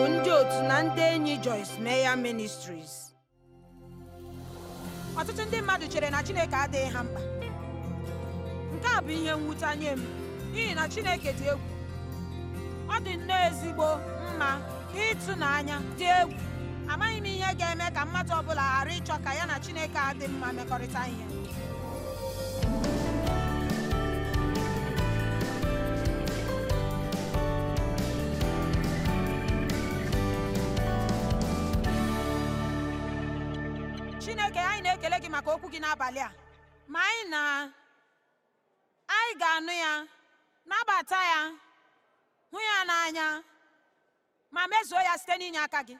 bụ ndị otu na ndị enyi Joyce meya Ministries. Ọtụtụ ndị mmadụ chere na Chineke adịghị ha mkpa. Nke a bụ ihe mwute nye m n'ihi na Chineke dị egwu. Ọ dị nnọọ ezigbo mma ịtụnanya dị egwu. Amaghị m ihe ga-eme ka mmadụ ọbụla ghara ịchọ ka ya na Chineke adị mma mmekọrịta ihe. maka okwu gị n'abalị a ma anyị na anyị ga-anụ ya nabata ya hụ ya n'anya ma mezuo ya site n'inye aka gị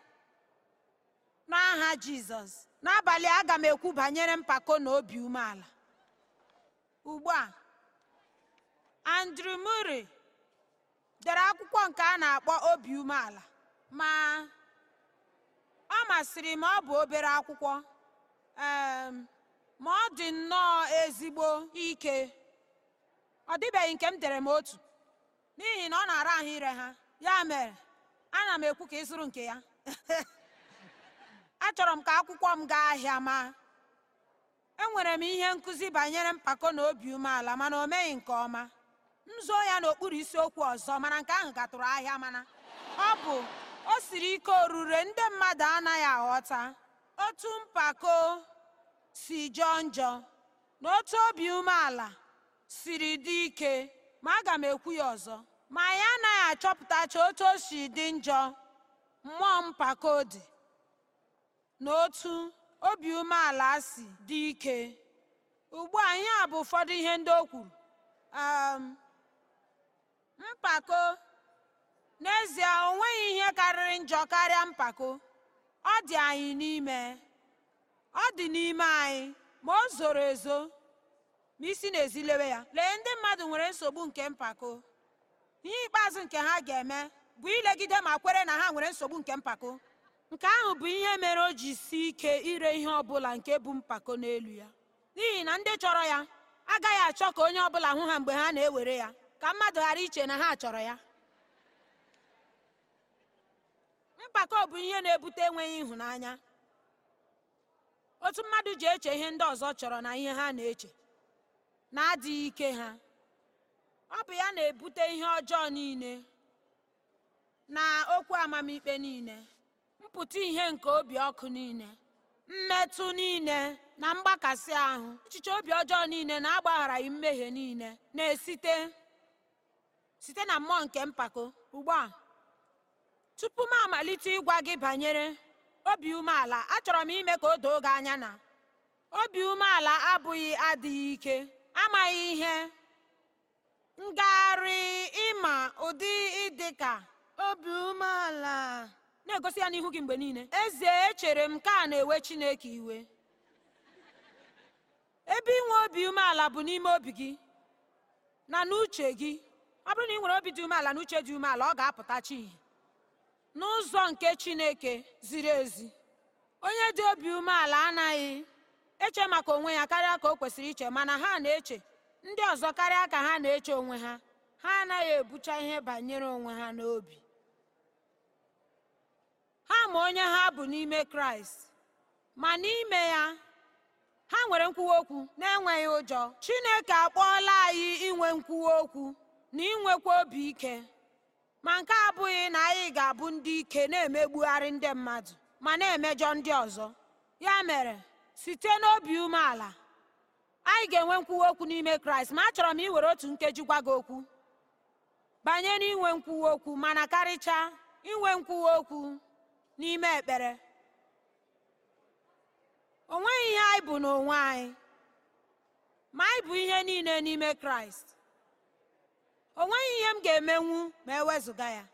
n'aha jizọs n'abalị aga m ekwu banyere mpako na obi umeala ugbu a Andrew Murray dere akwụkwọ nke a na-akpọ obi umeala ma ọ masịrị m ọ bụ obere akwụkwọ ma ọ dị nnọọ ezigbo ike ọ dịbeghị nke m dere m otu n'ihi na ọ na-ara ahụ ire ha ya mere ana m ekwu ka ị zụrụ nke ya achọrọ m ka akwụkwọ m gaa ahịa ma enwere m ihe nkụzi banyere mpako na obi umeala mana o meghị nke ọma m zoo ya n'okpuru isiokwu ọzọ mana nke ahụ gatụrụ ahịa mana ọ bụ o siri ike orure ndị mmadụ anaghị aghọta otu mpako si jọọ njọ na otu obi umeala siri dị ike ma aga m ekwu ya ọzọ ma anyị anaghị achọpụtacha otu o dị njọ mmụọ mpako dị na otu obi umeala si dị ike ugbu a ihe a bụ ụfọdụ ihe ndị o kwuru um, mpako n'ezie o nweghị ihe karịrị njọ karịa mpako ọ dị anyị n'ime ọ dị n'ime anyị ma o zoro ezo ma isi n'ezi lewe ya lee ndị mmadụ nwere nsogbu nke mpako ihe ikpeazụ nke ha ga-eme bụ ilegide ma kwere na ha nwere nsogbu nke mpako nke ahụ bụ ihe mere o ji si ike ire ihe ọbụla nke bụ mpako n'elu ya n'ihi na ndị chọrọ ya agaghị achọ ka onye ọbụla hụ ha mgbe ha na-ewere ya ka mmadụ ghara iche na ha chọrọ ya mpako bụ ihe na-ebute enweghị ịhụnanya otu mmadụ ji eche ihe ndị ọzọ chọrọ na ihe ha na-eche na-adịghị ike ha ọ bụ ya na-ebute ihe ọjọọ niile na okwu amamikpe niile mpụta ihe nke obi ọkụ niile mmetụ niile na mgbakasị ahụ echiche obi ọjọọ niile na-agbagharaghị mmehie niile na-esite site na mmụọ nke mpako ugbu a tupu m amalite ịgwa gị banyere obi umeala achọrọ m ime ka o doo gị anya na obi umeala abụghị adịghị ike amaghị ihe ngagharị ịma ụdị ịdị ka obi umeala na-egosi ya n'ihu gị mgbe niile eze echere m ka a na-ewe Chineke iwe ebe inwe obi umeala bụ n'ime obi gị na n'uche gị ọ bụrụ na ị nwere obi dị umeala na uche dị umeala ọ ga-apụtachi ihe n'ụzọ nke chineke ziri ezi onye dị obi umeala anaghị eche maka onwe ya karịa ka o kwesịrị iche mana ha na-eche ndị ọzọ karịa ka ha na-eche onwe ha ha anaghị ebucha ihe banyere onwe ha n'obi ha ma onye ha bụ n'ime kraịst ma n'ime ya ha nwere nkwuwa okwu na-enweghị ụjọ chineke akpọọla anyị inwe nkwuwa okwu na inwekwa obi ike ma nke abụghị na anyị ga-abụ ndị ike na-emegbugharị ndị mmadụ ma na-emejọ ndị ọzọ ya mere site n'obi umeala anyị ga-enwe nkwuwa okwu n'ime kraịst ma achọrọ m iwere otu nkeji gwa gị okwu banye n'inwe nkwuwa okwu mana karịchaa inwe nkwuwa okwu n'ime ekpere o nweghị ihe anyị bụ n'onwe anyị ma anyị bụ ihe niile n'ime kraịst o nweghị ihe m ga-emenwu ma e wezụga ya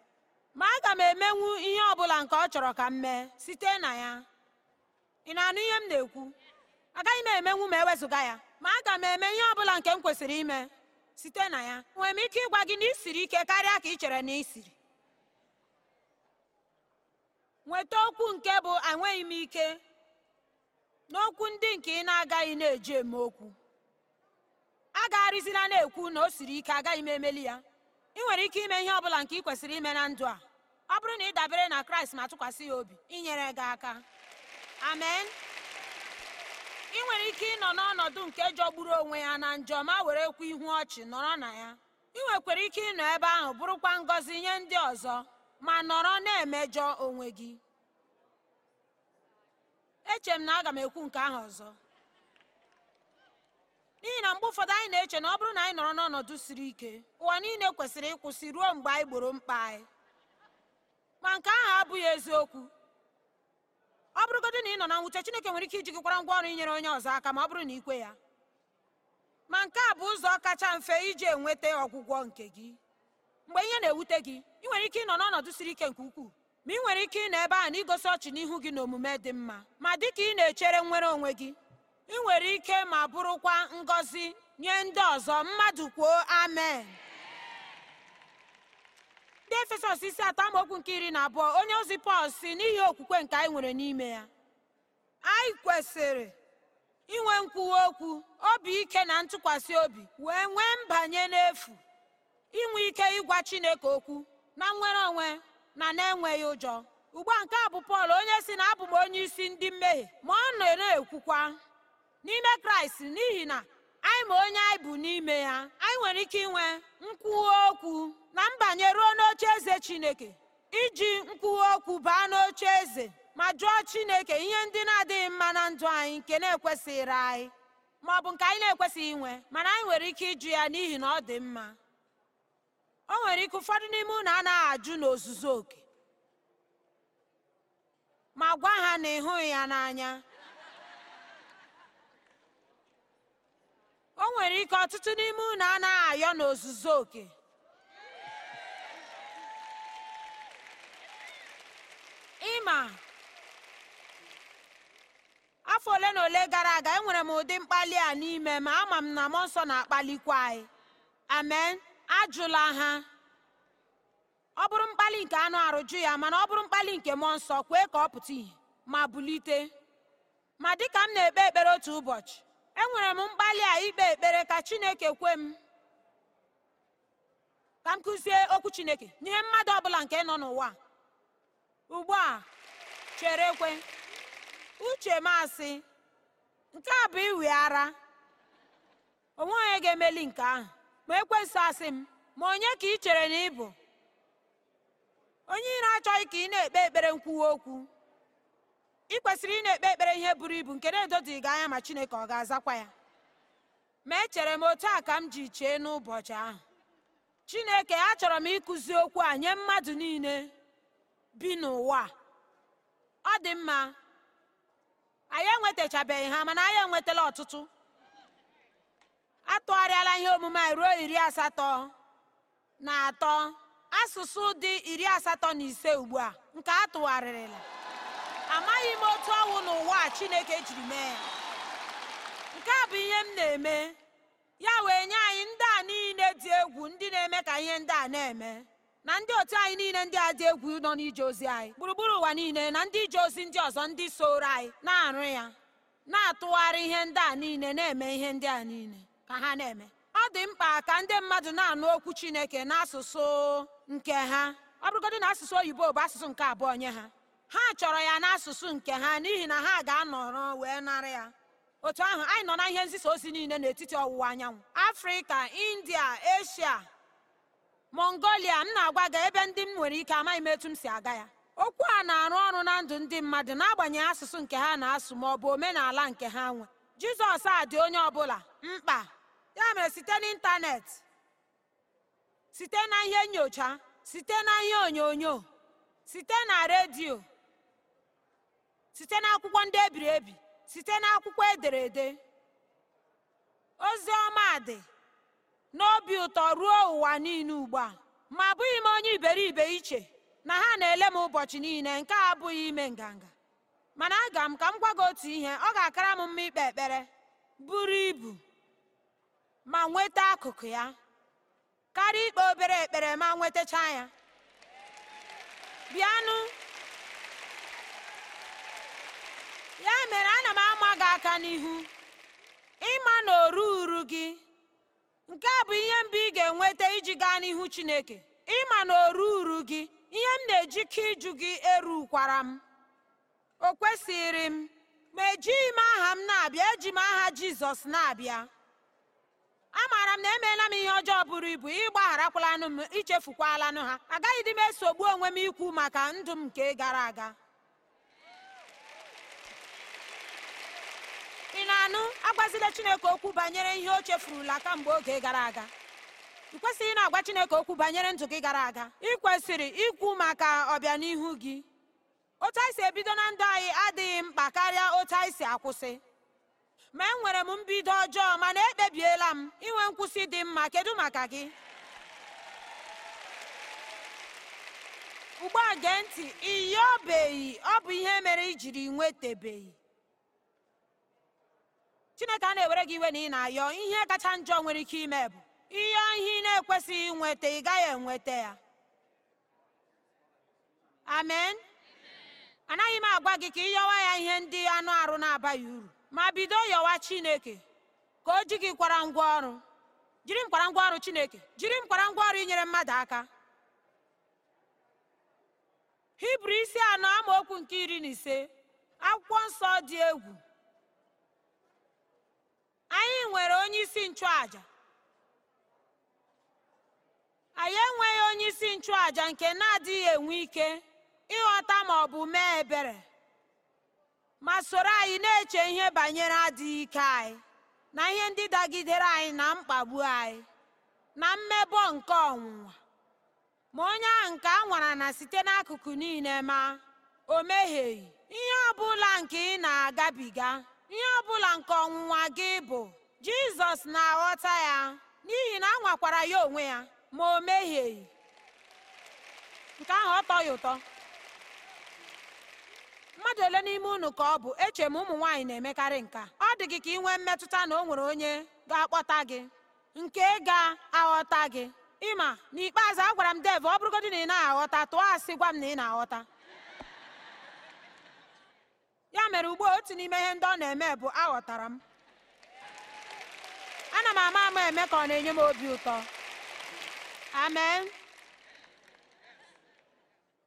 ma aga m emenwu ihe ọ bụla nke ọ chọrọ ka m mee site na ya ị na-anụ ihe m na-ekwu agaghị m emenwu ma ewezụga ya ma aga m eme ihe ọ bụla nke m kwesịrị ime site na ya Enwere m ike ịgwa gị na ị siri ike karịa ka ị chere na ị siri nweta okwu nke bụ enweghị m ike n'okwu ndị nke ị na-agaghị na-eji eme okwu a gagharịzila na-ekwu na o siri ike agaghị m emeli ya ị nwere ike ime ihe ọ bụla nke ị kwesịrị ime na ndụ a ọ bụrụ na ị dabere na kraịst ma tụkwasị ya obi inyere gị aka amen ị nwere ike ịnọ n'ọnọdụ nke jọgburu onwe ya na njọ ma were kwu ihu ọchị nọrọ na ya ị nwekwara ike ịnọ ebe ahụ bụrụkwa ngọzi nye ndị ọzọ ma nọrọ na-emejọ onwe gị echere m na aga m ekwu nke ahụ ọzọ n'ihi na mgbe ụfọdụ anyị na-eche na ọ bụrụ na anyị nọrọ n'ọnọdụ siri ike ụwa niile kwesịrị ịkwụsị ruo mgbe anyị gboro mkpa anyị ma nke ahụ abụghị eziokwu ọ bụrụgodị na ị nọ na nwute Chineke nwere ike iji gị kwara ngwa ọrụ inyere onye ọzọ aka ma ọ bụrụ na ikwe ya ma nke a bụ ụzọ kacha mfe iji enweta ọgwụgwọ nke gị mgbe ihe na-ewute gị ị nwere ike ịnọ n'ọnọdụ siri ike nke ukwuu ma ị nwere ike ịnọ ebe a na igosi ọchị n'ihu gị na omume dị mma ma dị ka ị na-echere nwere onwe gị ị nwere ike ma bụrụkwa ngọzi nye ndị ọzọ mmadụ kwuo amen ndị efesọs isi atọ amaokwu nke iri na abụọ onye ozi pọl si n'ihi okwukwe nke anyị nwere n'ime ya anyị kwesịrị inwe nkwuwa okwu obi ike na ntụkwasị obi wee nwee mbanye n'efu inwe ike ịgwa chineke okwu na nnwere onwe na na-enweghị ụjọ ugbu a nke a bụ pọl onye si na abụ m onye isi ndị mmehie ma ọ na-ekwukwa n'ime kraịst n'ihi na anyị ma onye anyị bụ n'ime ya anyị nwere ike inwe nkwuwa okwu na mbanye ruo n'oche eze chineke iji nkwuwa okwu baa n'oche eze ma jụọ chineke ihe ndị na-adịghị mma na ndụ anyị nke na-ekwesịghịrị anyị ma ọ bụ nke anyị na-ekwesịghị inwe mana anyị nwere ike ịjụ ya n'ihi na ọ dị mma o nwere ike ụfọdụ n'ime unu anaghị ajụ n'ozuzu oke ma gwa ha na ịhụghị ya n'anya o nwere ike ọtụtụ n'ime unu anaghị ayọ ozuzo oke ịma afọ ole na ole gara aga enwere m ụdị mkpali a n'ime ma ama m na m nsọ na-akpalikwa anyị amen ajụla ha ọ bụrụ mkpali nke anụ arụ ya mana ọ bụrụ mkpali nke mọ nsọ kwee ka ọ pụta ìhè ma bulite ma dịka m na-ekpe ekpere otu ụbọchị enwere m mkpali a ikpe ekpere ka chineke kwe m ka m kụzie okwu chineke nye mmadụ ọbụla nke nọ n'ụwa ugbu a chere ekwe uche m asị nke a bụ iwi ara onwe onye ga-emeli nke ahụ ma ekwesị asị m ma onye ka ị chere na ịbụ onye ire achọghị ka ị na-ekpe ekpere nkwuwa okwu ị kwesịrị ị na-ekpe ekpere ihe buru ibu nke na-edodị gị anya ma chineke ọ ga-azakwa ya ma echere m otu a ka m ji chee n'ụbọchị ahụ chineke achọrọ m ịkụzi okwu a nye mmadụ niile bi n'ụwa ọ dị mma anyị enwetachabeghị ha mana anyị enwetala ọtụtụ atụgharịala ihe omume anyị ruo iri asatọ na atọ asụsụ dị iri asatọ na ise ugbu a nke a amaghị m otu ọnwụ n'ụwa a chineke jiri mee ya nke a bụ ihe m na-eme ya wee nye anyị ndị a niile dị egwu ndị na-eme ka ihe ndị a na-eme na ndị otu anyị niile ndị a dị egwu nọ n'ije ozi anyị gburugburu ụwa niile na ndị ije ozi ndị ọzọ ndị soro anyị na-arụ ya na-atụgharị ihe ndị a niile na-eme ihe ndị a niile ka ha na-eme ọ dị mkpa ka ndị mmadụ na-anụ okwu chineke n'asụsụ nke ha ọ bụrụgodị na asụsụ oyibo bụ asụsụ nke abụọ nye ha ha chọrọ ya n'asụsụ nke ha n'ihi na ha ga-anọrọ wee nara ya otu ahụ anyị nọ na ihe nzisa ozi niile n'etiti ọwụwa anyanwụ afrịka india eshia mongolia m na-agwa gị ebe ndị m nwere ike amaghị m etu m si aga ya okwu a na-arụ ọrụ na ndụ ndị mmadụ n'agbanyeghị asụsụ nke ha na-asụ ma ọ bụ omenala nke ha nwe jizọs a dị onye ọbụla mkpa ya mere site n'ịntanetị site na ihe nyocha site na ihe onyonyo site na redio site n'akwụkwọ ndị ebiri ebi site n'akwụkwọ ederede ozi ọma dị n'obi ụtọ ruo ụwa niile ugbu a ma abụghị m onye iberibe iche na ha na-ele m ụbọchị niile nke abụghị ime nganga mana aga m ka m gwa otu ihe ọ ga-akara m mma ikpe ekpere buru ibu ma nweta akụkụ ya karịa ikpe obere ekpere ma nwetacha ya bịanụ ya mere ana m ama gị aka n'ihu ịma na oru uru gị nke a bụ ihe mbụ ị ga-enweta iji gaa n'ihu Chineke ịma na oru uru gị ihe m na-ejike ịjụ gị erukwara m o kwesịrị m ma ejighị m aha m na-abịa eji m aha Jizọs na-abịa amaara m na emeela m ihe ọjọọ bụrụ ibu ịgbagharakwala m ichefukwalanụ ha agaghị dị m esogbu onwe m ikwu maka ndụ m nke gara aga ị na-anụ agwazila chineke okwu banyere ihe o chefurula kamgbe oge gara aga ị kwesịghị na-agwa chineke okwu banyere ndụ gị gara aga ị kwesịrị ikwu maka ọbịanihu gị otu anyị si ebido na ndụ anyị adịghị mkpa karịa otu anyị si akwụsị ma enwere m mbido ọjọọ mana ekpebiela m inwe nkwụsị dị mma kedu maka gị ugbu a gee ntị iyi ọ bụ ihe mere i jiri nwetabeghị chineke a na-ewere gị iwe na ị na-ayọ ihe kacha njọ nwere ike ime bụ ihe ihe ị na-ekwesịghị nweta ị gaghị enweta ya amen anaghị m agwa gị ka ịyọwa ya ihe ndị anụ arụ na-abaghị uru ma bido yọwa chineke ka o ji gị kwara ngwa ọrụ jiri m kwara ngwa ọrụ chineke jiri m kwara ngwa ọrụ inyere mmadụ aka hibru isi anọ amaokwu nke iri na ise akwụkwọ nsọ dị egwu anyị nwere onye isi nchụaja anyị enweghị onyeisi nke na-adịghị enwe ike ịghọta ma ọ bụ mee ebere ma soro anyị na-eche ihe banyere adịghị ike anyị na ihe ndị dagidere anyị na mkpagbu anyị na mmebọ nke ọnwụnwa ma onye ahụ nke a nwara na site n'akụkụ niile ma o mehieghị ihe ọ bụla nke ị na-agabiga ihe ọ bụla nke ọnwụnwa gị bụ jizọs na-aghọta ya n'ihi na a nwakwara ya onwe ya ma o mehieghị nke ahụ ọ tọ ya ụtọ mmadụ ole n'ime unu ka ọ bụ eche m ụmụ nwaanyị na-emekarị nka ọ dị gị ka ị nwee mmetụta na o nwere onye ga-akpọta gị nke ga-aghọta gị ịma n'ikpeazụ agwara m dev ọ bụrụgodị na ị naghị aghọta tụọ asị gwa m na ị na-aghọta ya mere ugbua otu n'ime ihe ndị ọ na-eme bụ aghọtara m ana m ama ama eme ka ọ na-enye m obi ụtọ amen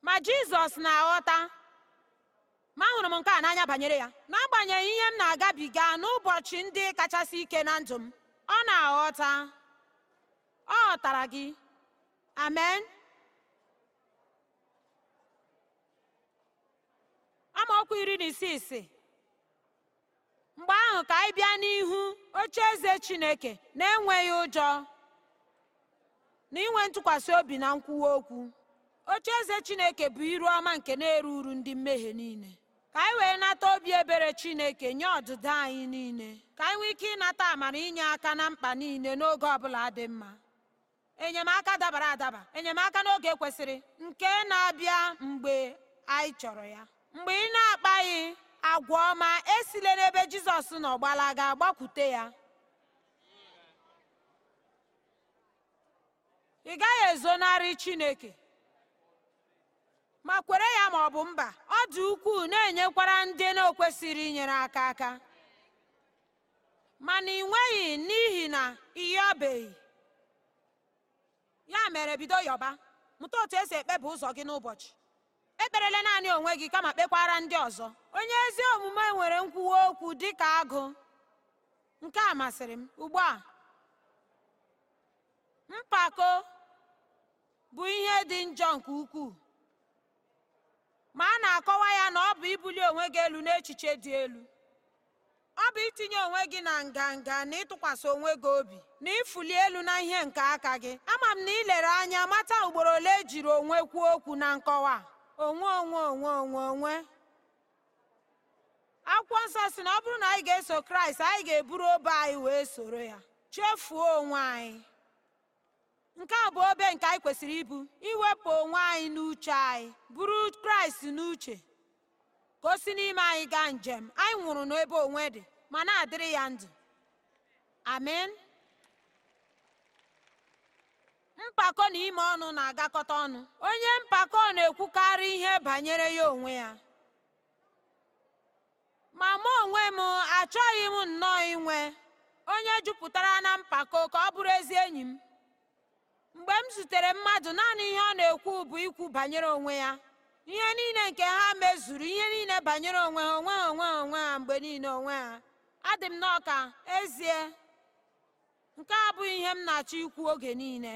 ma jizọs na-aghọta ma ahụrụ m nke a n'anya banyere ya n'agbanyeghị ihe m na-agabiga n'ụbọchị ndị kachasị ike na ndụ m ọ na-aghọta ọ ghọtara gị amen amaokwu iri na isii si mgbe ahụ ka anyị bịa n'ihu oche eze chineke na-enweghị ụjọ na inwe ntụkwasị obi na nkwuwa okwu oche eze chineke bụ iru ọma nke na-eru uru ndị mmehie niile ka anyị wee nata obi ebere chineke nye ọdịda anyị niile ka anyị nwee ike ịnata amara inye aka na mkpa niile n'oge ọbụla dị mma enyemaka dabara adaba enyemaka n'oge kwesịrị nke na-abịa mgbe anyị chọrọ ya mgbe ị na-akpaghị agwa ọma esile n'ebe jizọs nọ gbalaga gbakwute ya ị gaghị ezonarị chineke ma kwere ya ma ọ bụ mba ọ dị ukwuu na-enyekwara ndị na-ekwesịrị inyere aka aka mana ị nweghị n'ihi na ịyọbeghị ya mere bido yọba mụta otu esi ekpebi ụzọ gị n'ụbọchị ekperela naanị onwe gị kama kpekwara ndị ọzọ onye ezi omume nwere nkwuwa okwu dị ka agụ nke a masịrị m ugbu a mpako bụ ihe dị njọ nke ukwuu ma a na-akọwa ya na ọ bụ ibuli onwe gị elu n'echiche dị elu ọ bụ itinye onwe gị na nganga na ịtụkwasị onwe gị obi na ịfụli elu na ihe nke aka gị ama m na ilere anya mata ugboro ole ejiri onwe kwuo okwu na nkọwa onwe onwe onwe onwe onwe akwụkwọ nsọ si na ọ bụrụ na anyị ga-eso kraịst anyị ga-eburu obe anyị wee soro ya chefuo onwe anyị nke a bụ obe nke anyị kwesịrị ibu iwepụ onwe anyị n'uche anyị buru kraịst n'uche ka o si n'ime anyị gaa njem anyị nwụrụ n'ebe onwe dị ma na-adịrị ya ndụ amen mpako na ime ọnụ na-agakọta ọnụ onye mpako na-ekwukarị ihe banyere ya onwe ya ma mụ onwe m achọghị m nnọọ inwe onye jupụtara na mpako ka ọ bụrụ ezi enyi m mgbe m zutere mmadụ naanị ihe ọ na-ekwu bụ ikwu banyere onwe ya ihe niile nke ha mezuru ihe niile banyere onwe ha onwe ha onwe ha onwe ha mgbe niile onwe ha adị m n'ọka ezie nke a abụghị ihe m na-achọ ikwu oge niile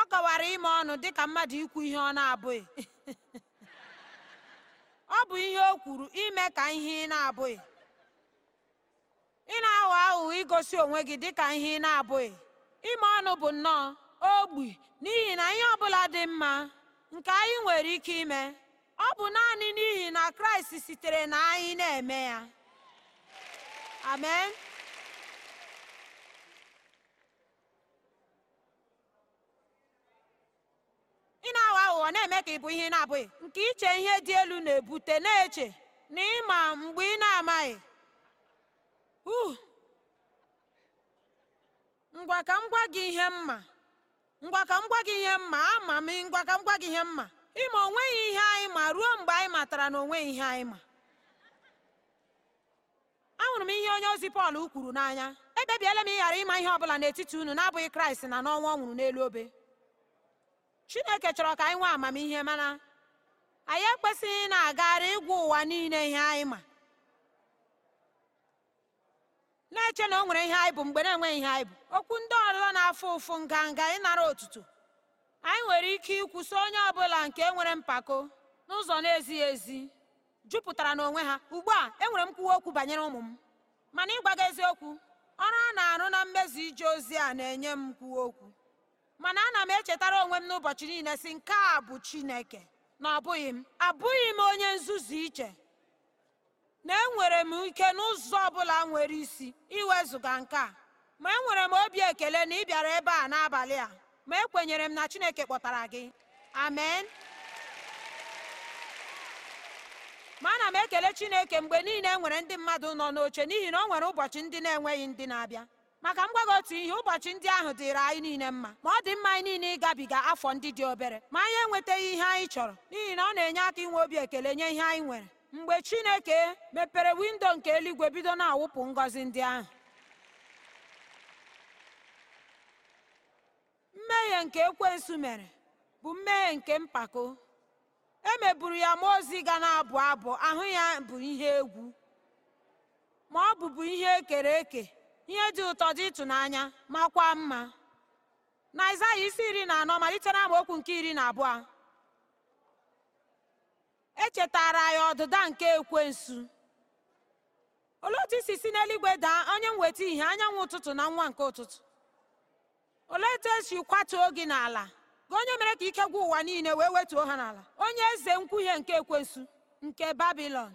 ọ kọwara ime ọnụ dịka mmadụ ikwu ihe ọ na-abụghị ọ bụ ihe o kwuru ime ka ihe ị na-abụghị ị na-aghọ aghụghọ igosi onwe gị dịka ihe ị na-abụghị ime ọnụ bụ nnọọ ogbi n'ihi na ihe ọbụla dị mma nke anyị nwere ike ime ọ bụ naanị n'ihi na kraịst sitere na anyị na-eme ya amen ọ na-eme ka ị bụ ihe na-abụghị nke iche ihe dị elu na-ebute na-eche na ịma mgbe ị na-amaghị ngwa ka m gwa gị ihe mma ngwa ka gị ihe mma ama m ngwa ka m gwa gị ihe mma ịma onweghị ihe anyị ma ruo mgbe anyị matara na onweghị ihe anyị ma ahụrụ m ihe onye ozi Pọl kwuru n'anya ekpebiela m ịghara ịma ihe ọ bụla n'etiti unu na-abụghị Kraịst na n'ọnwa ọ nwụrụ n'elu obe chineke chọrọ ka anyị nwee amamihe mana anyị ekwesịghị na-agagharị ịgwa ụwa niile ihe anyị ma na-eche na o nwere ihe anyị bụ mgbe na-enweghị ihe anyị bụ okwu ndị ọlụlọ na-afụ ụfụ nganga ịnara otuto anyị nwere ike ikwuso onye ọbụla nke nwere mpako n'ụzọ na-ezighị ezi jupụtara n'onwe ha ugbu a enwere m kwuwa okwu banyere ụmụ m mana ịgwa gị eziokwu ọrụ a na-arụ na mmezi ije ozi a na-enye m nkwuwa okwu mana ana m echetara onwe m n'ụbọchị niile si nke a bụ chineke na ọbụghị m abụghị m onye nzuzu iche na enwere m ike n'ụzọ ọbụla nwere isi iwezụga nke a ma enwere m obi ekele na ị bịara ebe a n'abalị a ma ekwenyere m na chineke kpọtara gị amen ma ana m ekele chineke mgbe niile enwere ndị mmadụ nọ n'oche n'ihi na o nwere ụbọchị ndị na-enweghị ndị na-abịa maka m gwago otu ihe ụbọchị ndị ahụ dịrị anyị niile mma ma ọ dị mma anyị niile ịgabiga afọ ndị dị obere ma anyị enwetaghị ihe anyị chọrọ n'ihi na ọ na-enye aka inwe obi ekele nye ihe anyị nwere mgbe chineke mepere windo nke eluigwe bido na-awụpụ ngọzi ndị ahụ mmehie nke ekwensu mere bụ mmehie nke mpako e meburu ya ma ozi ga na-abụ abụ ahụ ya bụ ihe egwu ma ọ bụbu ihe ekere eke ihe dị ụtọ dị ịtụnanya makwa mma na Aịzaya isi iri na anọ malite na amaokwu nke iri na abụọ echetara ya ọdịda nke ekwensu olee otu isi si n'eluigwe daa onye nweta ihe anyanwụ ụtụtụ na nwa nke ụtụtụ olee etu esi kwatuo gị n'ala gị onye mere ka ike gwụ ụwa niile wee wetuo ha n'ala onye eze nkwuhie nke ekwensu nke babilọn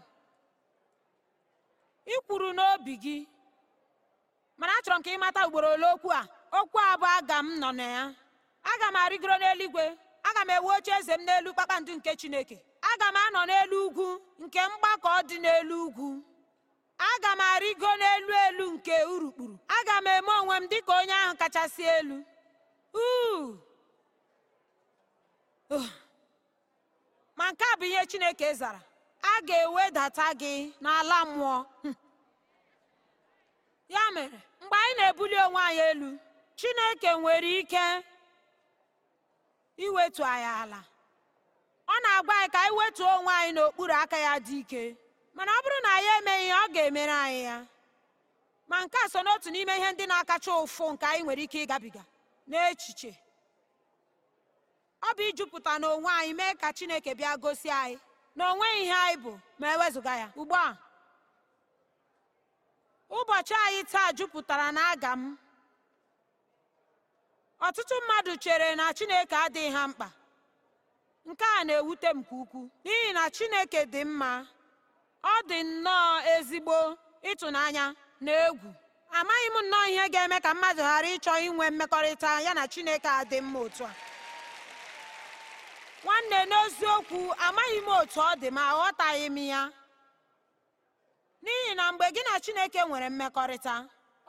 i kwuru n'obi gị mana achọrọ m ka ị mata ugboro ole okwu a okwu a bụ aga m nọ na ya aga m arịgoro n'eluigwe aga m ewu oche eze m n'elu kpakpando nke chineke aga m anọ n'elu ugwu nke mgbakọ dị n'elu ugwu aga m arịgo n'elu elu nke urukpuru aga m eme onwe m dịka onye ahụ kachasị elu oh! ma nke a bụ ihe chineke zara a ga-ewedata gị n'ala mmụọ ya mere mgbe anyị na-ebuli onwe anyị elu chineke nwere ike iwetu anyị ala ọ na-agwa anyị ka anyị wetuo onwe anyị n'okpuru aka ya dị ike mana ọ bụrụ na anyị emeghị ọ ga-emere anyị ya ma nke a so n'otu n'ime ihe ndị na-akacha ụfụ nke anyị nwere ike ịgabiga n'echiche ọ bụ ijupụta n'onwe anyị mee ka chineke bịa gosi anyị na ihe anyị bụ ma ewezụga ya ugbu a ụbọchị anyị taa jupụtara na aga m ọtụtụ mmadụ chere na chineke adịghị ha mkpa nke a na-ewute m nke ukwu. n'ihi na chineke dị mma ọ dị nnọọ ezigbo ịtụnanya na egwu amaghị m nnọọ ihe ga-eme ka mmadụ ghara ịchọ inwe mmekọrịta ya na chineke adị mma otu a nwanne n'eziokwu amaghị m otu ọ dị ma aghọtaghị m ya n'ihi na mgbe gị na chineke nwere mmekọrịta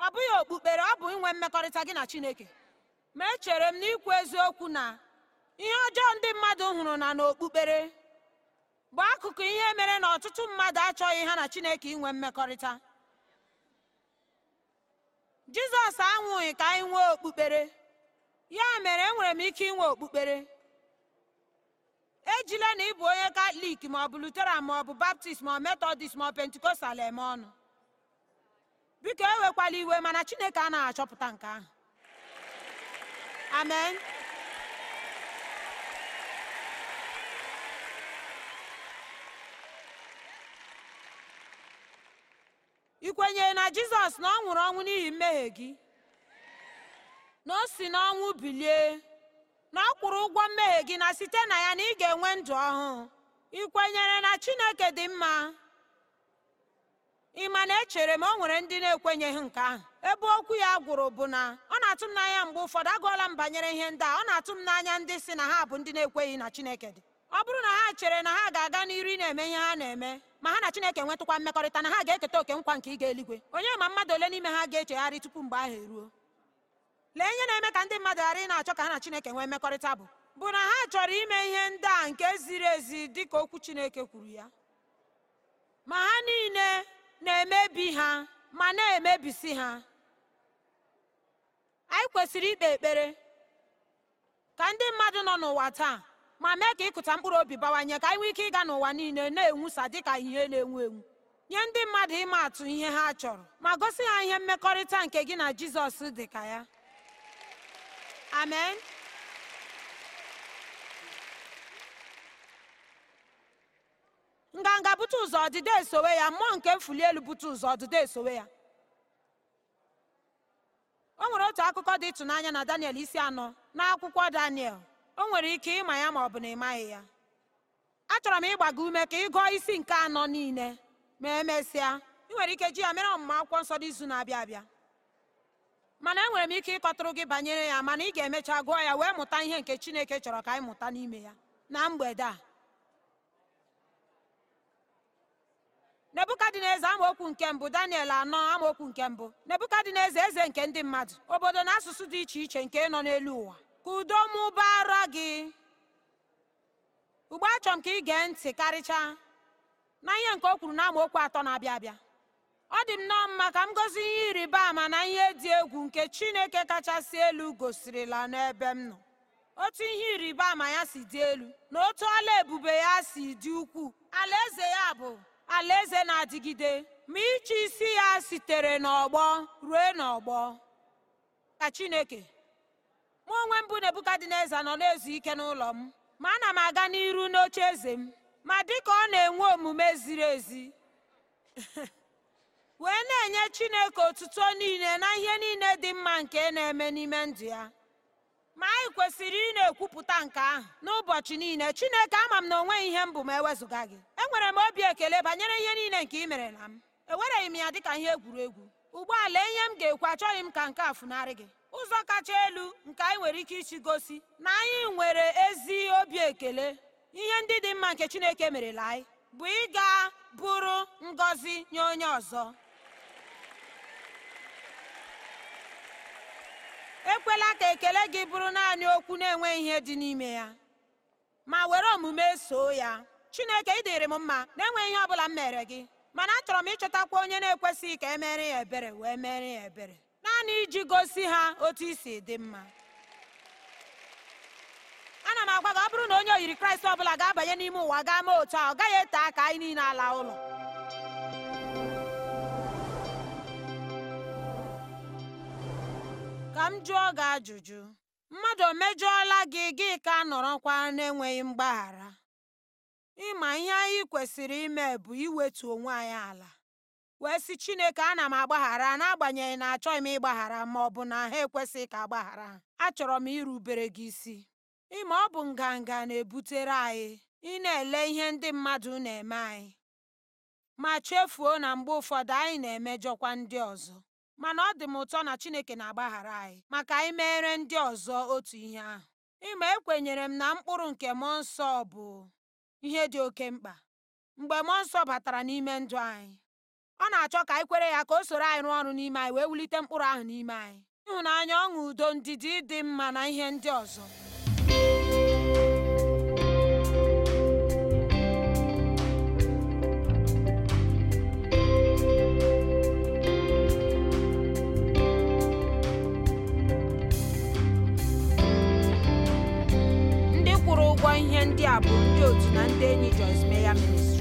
ọ bụghị okpukpere ọ bụ inwe mmekọrịta gị na chineke ma echere m n'ikwu eziokwu na ihe ọjọọ ndị mmadụ hụrụ na n'okpukpere bụ akụkụ ihe mere na ọtụtụ mmadụ achọghị ha na chineke inwe mmekọrịta jizọs anwụghị ka anyị nwee okpukpere ya mere enwere m ike inwe okpukpere ejila na ị bụ onye katọlik ma ọ bụ luteran ma ọ bụ baptist ma ọ metọdist ma ọ pentikostal eme ọnụ biko ewekwala iwe mana chineke anaghị achọpụta nke ahụ amen ị kwenyere na jizọs na ọ nwụrụ ọnwụ n'ihi mmehie gị na o si n'ọnwụ bilie na ọ kwụrụ ụgwọ mmehie gị na site na ya na ị ga-enwe ndụ ọhụụ ị kwenyere na Chineke dị mma ị ma na echere m o nwere ndị na-ekwenyeghị nke ahụ ebe okwu ya gwụrụ bụ na ọ na-atụ m n'anya mgbe ụfọdụ agụọla m banyere ihe ndị a ọ na-atụ m n'anya ndị si na ha bụ ndị na-ekweghị na Chineke dị ọ bụrụ na ha chere na ha ga-aga n'iru na-eme ihe ha na-eme ma ha na Chineke nwetụkwa mmekọrịta na ha ga-eketa oke nkwa nke ịga eligwe onye ma mmadụ ole n'ime ha ga-echegharị tupu mgbe ahụ eruo lee ihe na-eme ka ndị mmadụ ghara ị na-achọ ka ha na chineke nwee mmekọrịta bụ bụ na ha chọrọ ime ihe ndị a nke ziri ezi dị ka okwu chineke kwuru ya ma ha niile na-emebi ha ma na-emebisi ha anyị kwesịrị ikpe ekpere ka ndị mmadụ nọ n'ụwa taa ma mee ka ịkụta mkpụrụ obi bawanye ka anyị nwee ike ịga n'ụwa niile na-enwusa dịka ihe na-enwu enwu nye ndị mmadụ ịma atụ ihe ha chọrọ ma gosi ha ihe mmekọrịta nke gị na jizọs dị ka ya Amen. nganga bute ụzọ ọdịda esowe ya mmụọ nke mfuli elu bute ụzọ ọdịda esowe ya o nwere otu akụkọ dị ịtụnanya na daniel isi anọ n'akwụkwọ daniel o nwere ike ịma ya ma ọ bụ na ịmaghị ya achọrọ m ịgbaga ume ka ị gụọ isi nke anọ niile ma emesịa ị nwere ike ji ya mere ọmụma akwụkwọ nsọ n'izu na-abịa abịa mana enwere m ike ịkọtụrụ gị banyere ya mana ị ga-emecha gụọ ya wee mụta ihe nke Chineke chọrọ ka anyị mụta n'ime ya na mgbede a Nebuka dị n'eze amaokwu nke mbụ daniel anọ amaokwu nke mbụ Nebuka dị n'eze eze nke ndị mmadụ obodo na asụsụ dị iche iche nke nọ n'elu ụwa ka udo mụbara gị ugbo achọrọ m ka ị gee ntị karịchaa na ihe nke o kwuru na amaokwu atọ na-abịa abịa ọ dị m nnọọ mma ka m gozi ihe ịrịba ama na ihe dị egwu nke Chineke kachasị elu gosirila n'ebe m nọ otu ihe ịrịba ama ya si dị elu na otu ọla ebube ya si dị ukwuu eze ya bụ alaeze na-adịgide ma iche isi ya sitere n'ọgbọ ruo n'ọgbọ ka Chineke mụ onwe mbụ Nebukadneza nọ na-ezu ike n'ụlọ m ma ana m aga n'iru n'oche eze m ma dịka ọ na-enwe omume ziri ezi wee na-enye Chineke otuto niile na ihe niile dị mma nke na-eme n'ime ndụ ya ma anyị kwesịrị ị na-ekwupụta nke ahụ n'ụbọchị niile Chineke ama m na onweghị ihe m bụ ma ewezụga gị enwere m obi ekele banyere ihe niile nke ị mere na m ewereghị m ya dịka ihe egwuregwu ụgbọala ihe m ga-ekwu achọghị m ka nke a funarị gị ụzọ kacha elu nke anyị nwere ike isi gosi na anyị nwere ezi obi ekele ihe ndị dị mma nke Chineke merela anyị bụ ịga bụrụ ngọzi nye onye ọzọ ekwela ka ekele gị bụrụ naanị okwu na-enweghị ihe dị n'ime ya ma were omume soo ya chineke ị dịrị m mma na-enweghị ihe ọ bụla m mere gị mana achọrọ m ịchọtakwa onye na-ekwesịghị ka e mere ya ebere wee mere ya ebere naanị iji gosi ha otu isi dị mma ana m agwa gị ọ bụrụ na onye oyiri kraịst ọ bụla ga-abanye n'ime ụwa gaa mee otu a ọ gaghị ete aka anyị niile ala ụlọ ka m jụọ gị ajụjụ mmadụ o mejọọla gị gị ka a nọrọkwa na-enweghị mgbaghara ịma ihe anyị kwesịrị ime bụ iwetu onwe anyị ala wee sị chineke ana m agbaghara n'agbanyeghị na achọghị m ịgbaghara ma ọ bụ na ha ekwesịghị ka agbaghara achọrọ m irubere gị isi ịma ọ bụ nganga na-ebutere anyị ị na-ele ihe ndị mmadụ na-eme anyị ma chefuo na mgbe ụfọdụ anyị na-emejọkwa ndị ọzọ mana ọ dị m ụtọ na Chineke na-agbaghara anyị maka anyị ndị ọzọ otu ihe ahụ ịma ekwenyere m na mkpụrụ nke mmụọ nsọ bụ ihe dị oke mkpa mgbe mmụọ nsọ batara n'ime ndụ anyị ọ na-achọ ka anyị kwere ya ka o soro anyị rụọ ọrụ n'ime anyị wee wulite mkpụrụ ahụ n'ime anyị ịhụnanya ọṅụ udo ndidi dị mma na ihe ndị ọzọ ndị a bụ ndị otu na ndị enyi Joyce Meya